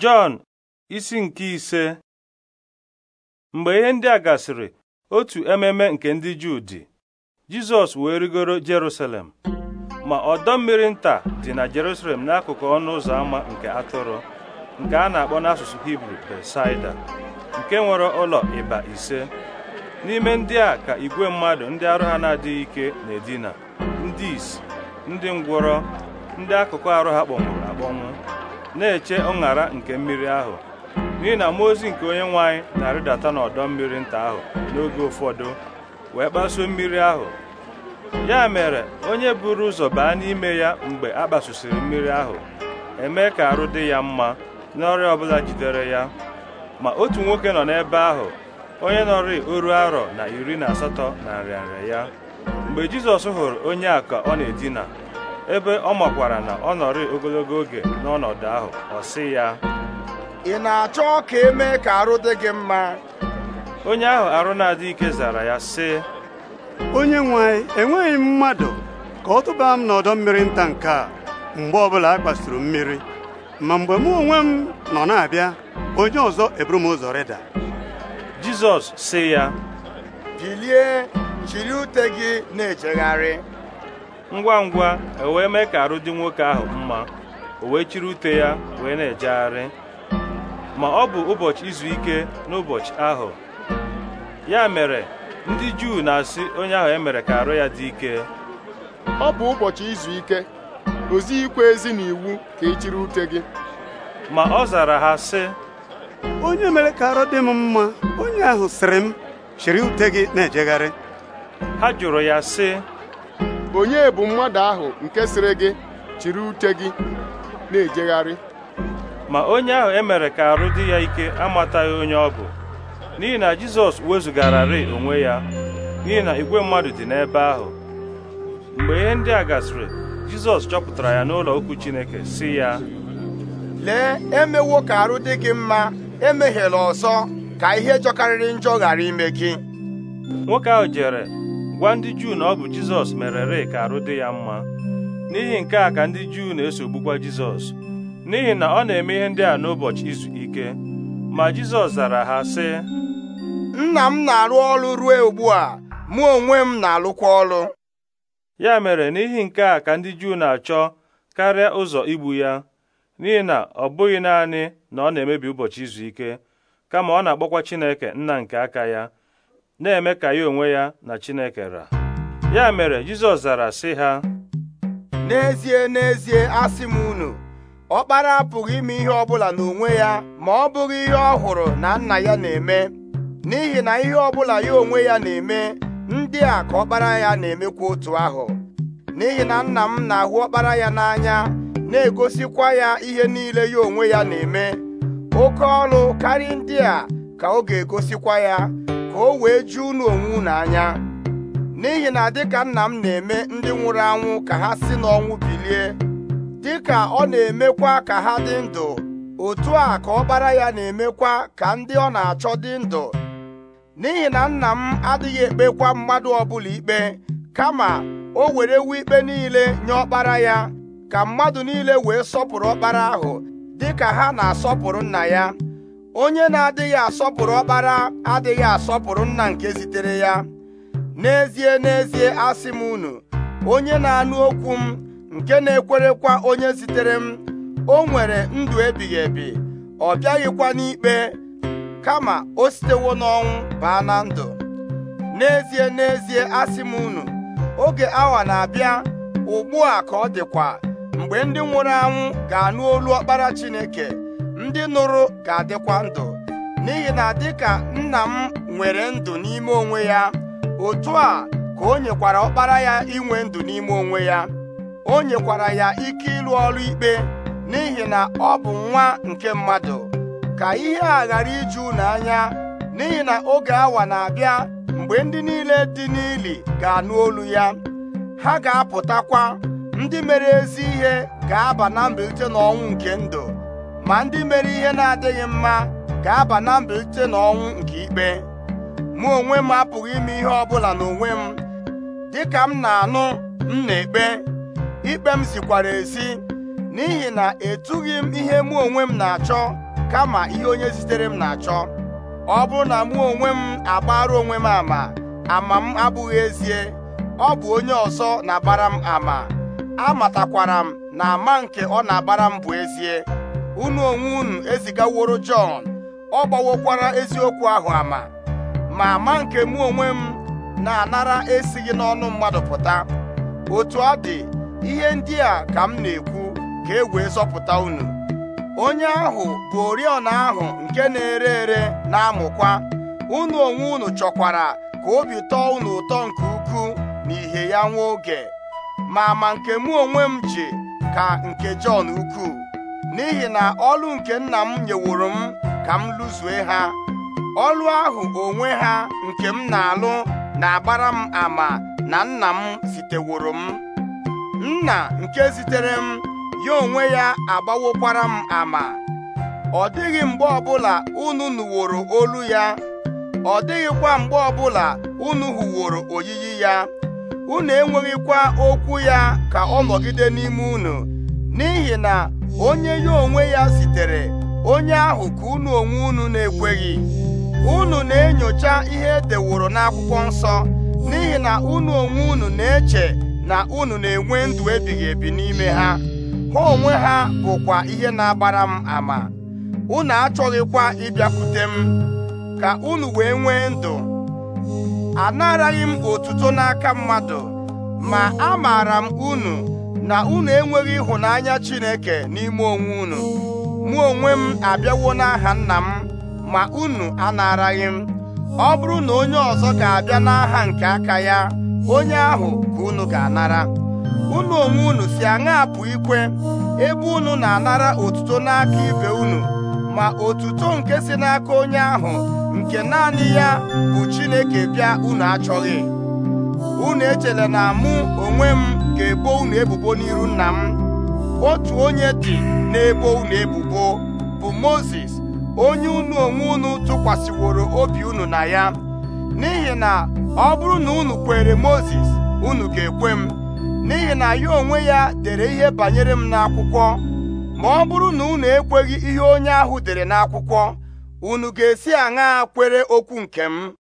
Jọn isi nke ise mgbe ihe ndị a gasịrị otu ememe nke ndị Juu dị Jizọs wee rigoro Jerusalem ma ọdọ mmiri nta dị na Jerusalem n'akụkụ ọnụ ụzọ ámá nke atụrụ nke a na-akpọ n'asụsụ Hibru Besaida nke nwere ụlọ ịba ise n'ime ndị a ka igwe mmadụ ndị arụ ha na-adịghị ike na-edina ndị isi ndị ngwọrọ ndị akụkụ arụ ha kpọnwụrụ akpọnwụ na-eche ọṅara nke mmiri ahụ n'ihi na mmụọ ozi nke onye nwanyị na-arịdata n'ọdọ mmiri nta ahụ n'oge ụfọdụ wee kpasuo mmiri ahụ ya mere onye buru ụzọ baa n'ime ya mgbe a kpasusiri mmiri ahụ emee ka arụ dị ya mma n'ọrịa ọbụla jidere ya ma otu nwoke nọ n'ebe ahụ onye nọrị oru arọ na iri na asatọ na nrịanrịa ya mgbe Jizọs hụrụ onye a ka ọ na-edina ebe ọ makwara na ọ nọrị ogologo oge n'ọnọdụ ahụ ọ sị ya ị na-achọ ka emee ka arụ dị gị mma onye ahụ arụ na-adị ike zara ya sị onye nwe enweghị mmadụ ka ọ tụba m n'ọdọ mmiri nta nke a mgbe ọbụla a kpasuru mmiri ma mgbe mụ onwe m nọ na-abịa onye ọzọ eburu m ụzọ rịda jizọs sị ya bilie jiri ute gị na-ejegharị ngwa ngwa e wee mee ka arụ dị nwoke ahụ mma o wee chiri ute ya wee na-ejegharị ma ọ bụ ụbọchị izu ike n'ụbọchị ahụ ya mere ndị Juu na-asị onye ahụ emere ka arụ ya dị ike ọ bụ ụbọchị izu ike ozi ikwe ezi na iwu ka ị e chiri ute gị ma ọ zara ha sị onye mere ka arụ dị m mma onye ahụ sịrị m chiri ute gị na-ejegharị ha jụrụ ya sị onye bụ mmadụ ahụ nke sịrị gị chiri uche gị na-ejegharị ma onye ahụ emere ka arụ dị ya ike amataghị onye ọ bụ n'ihi na Jizọs wezụgararị onwe ya n'ihi na igwe mmadụ dị n'ebe ahụ mgbe ihe ndị a gasịrị Jizọs chọpụtara ya n'ụlọ okwu Chineke si ya lee emewo ka arụ dị gị mma emeghela ọzọ ka ihe jọkarịrị njọ ghara ime gị nwoke ahụ jere gwa ndị Juu na ọ bụ Jizọs merere ka arụ dị ya mma n'ihi nke a ka ndị Juu na-esogbukwa Jizọs n'ihi na ọ na-eme ihe ndị a n'ụbọchị izu ike ma Jizọs zara ha sị nna m na-arụ ọrụ ruo ugbu a mụ onwe m na-alụkwa ọrụ ya mere n'ihi nke a ka ndị Juu na-achọ karịa ụzọ igbu ya n'ihi na ọ bụghị naanị na ọ na-emebi ụbọchị izu ike kama ọ na-akpọkwa Chineke nna nke aka ya na-eme ka ya onwe ya na Chineke ra ya mere Jizọs zara sị ha n'ezie n'ezie asị m unu ọkpara apụghị ime ihe ọbụla n'onwe ya ma ọ bụghị ihe ọ hụrụ na nna ya na-eme n'ihi na ihe ọbụla ya onwe ya na-eme ndị a ka ọkpara ya na-emekwa otu ahụ n'ihi na nna m na-ahụ ọkpara ya n'anya na-egosikwa ya ihe niile ya onwe ya na-eme oke ọrụ karịa ndị a ka ọ ga-egosikwa ya ka o wee ju unu onwe unu anya n'ihi na dịka nna m na-eme ndị nwụrụ anwụ ka ha si n'ọnwụ bilie dịka ọ na-emekwa ka ha dị ndụ otu a ka ọbara ya na-emekwa ka ndị ọ na-achọ dị ndụ n'ihi na nna m adịghị ekpekwa mmadụ ọbụla ikpe kama o werewo ikpe niile nye ọkpara ya ka mmadụ niile wee sọpụrụ ọkpara ahụ dịka ha na-asọpụrụ nna ya onye na-adịghị asọpụrụ ọkpara adịghị asọpụrụ nna nke zitere ya n'ezie n'ezie asị m unu onye na-anụ okwu m nke na-ekwerekwa onye zitere m o nwere ndụ ebighị ebi ọ bịaghịkwa n'ikpe kama o sitewo n'ọnwụ baa na ndụ n'ezie n'ezie asị m unu oge awa na-abịa ugbu a ka ọ dịkwa mgbe ndị nwụrụ anwụ ga-anụ olu ọkpara Chineke ndị nụrụ ga-adịkwa ndụ n'ihi na dịka nna m nwere ndụ n'ime onwe ya otu a ka o nyekwara ọkpara ya inwe ndụ n'ime onwe ya o nyekwara ya ike ịlụ ọrụ ikpe n'ihi na ọ bụ nwa nke mmadụ ka ihe a ghara iju n'anya n'ihi na oge awa na-abịa mgbe ndị niile dị n'ili ga-anụ olu ya ha ga-apụtakwa ndị mere ezi ihe ga-aba na mbilite n'ọnwụ nke ndụ ma ndị mere ihe na-adịghị mma ga-aba na mbilite na ọnwụ nke ikpe mụ onwe m apụghị ime ihe ọbụla n'onwe m dịka m na-anụ m na-ekpe ikpe m zikwara ezi n'ihi na etughị m ihe mụ onwe m na-achọ kama ihe onye zitere m na-achọ ọ bụrụ na mụ onwe m agbara onwe m ama ama m abụghị ezie ọ bụ onye ọzọ na-agbara m ama amatakwara m na ama nke ọ na-agbara m bụ ezie unu onwe unu ezigaworo Jọn ọ gbawokwara eziokwu ahụ ama ma ma nke mụ onwe m na-anara esighị n'ọnụ mmadụ pụta otu ọ dị ihe ndị a ka m na-ekwu ka e wee zọpụta unu onye ahụ bụ oriọna ahụ nke na-ere ere na-amụkwa unu onwe unu chọkwara ka obi tọọ unu ụtọ nke ukwuu na ihe ya nwa oge ma ma nke mụ onwe m ji ka nke Jọn ukwuu n'ihi na ọlụ nke nna m nyeworo m ka m lụzue ha ọlụ ahụ onwe ha nke m na-alụ na-agbara m ama na nna m ziteworo m nna nke zitere m ya onwe ya agbawokwara m ama ọ dịghị mgbe ọbụla unu nụworo olu ya ọ dịghịkwa mgbe ọbụla unu hụworo oyiyi ya unu enweghịkwa okwu ya ka ọ nọgide n'ime unu n'ihi na onye ya onwe ya sitere onye ahụ ka unu onwe unu na-ekweghị unu na-enyocha ihe edeworo n'akwụkwọ nsọ n'ihi na unu onwe unu na-eche na unu na-enwe ndụ ebighị ebi n'ime ha ha onwe ha bụkwa ihe na-agbara m ama unu achọghịkwa ịbịakwute m ka unu wee nwee ndụ anaraghị m otuto n'aka mmadụ ma amaara m unu na unu enweghị ịhụnanya Chineke n'ime onwe unu mụ onwe m abịawo n'aha nna m ma unu anaraghị m ọ bụrụ na onye ọzọ ga-abịa n'aha nke aka ya onye ahụ ka unu ga-anara unu onwe unu si aṅa apụ ikwe ebe unu na-anara otuto n'aka ibe unu ma otuto nke si n'aka onye ahụ nke naanị ya bụ Chineke bịa unu achọghị unu echela na mụ onwe m ga-ebo unu ebubo n'iru nna m otu onye dị na-ebo unu ebubo bụ Mozis onye unu onwe unu tụkwasịworo obi unu na ya n'ihi na ọ bụrụ na unu kwere Mozis unu ga-ekwe m n'ihi na ya onwe ya dere ihe banyere m n'akwụkwọ ma ọ bụrụ na unu ekweghị ihe onye ahụ dere n'akwụkwọ unu ga-esi aṅaa kwere okwu nke m